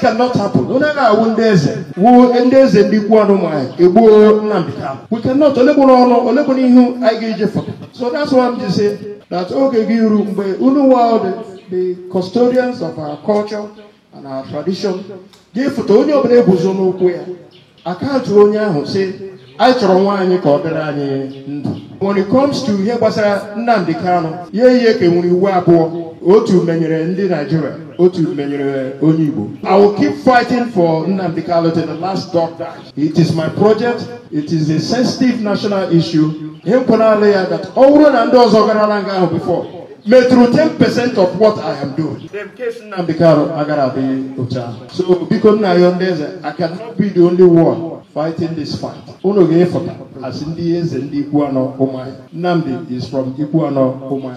that cannot happen onye na-awụ ndị eze wuo ndị eze ndị ikwu ọnụ nwaanyị egbuo Nnamdi Kanu we cannot olegboro ọnụ olegboro ihu anyị ga-eje foto so that's why I'm just say that oge gị iru mgbe unu wa the custodians of our culture and our tradition gị foto onye ọbụla eguzo n'ụkwụ ya akaụntụ onye ahụ si anyị chọrọ nwa anyị ka ọ dịrị anyị ndụ when it comes to ihe gbasara Nnamdi Kanu ya ihe ka e nwere iwu abụọ otu menyere ndị Naijiria otu menyere onye Igbo I will keep fighting for Nnamdi Kanu to the last drop it is my project it is a sensitive national issue ihe nkwenala ya that ọ bụrụ na ndị ọzọ gara nga ahụ before metụrụ 10% of what I am doing. Nnamdi Kanu agara adịghị otu ahụ so biko nna ya ndị eze I cannot be the only one fighting this fight unu ga-efọta asị ndị eze ndị ikwu anọ ụmụ Nnamdi is from ikwu anọ ụmụ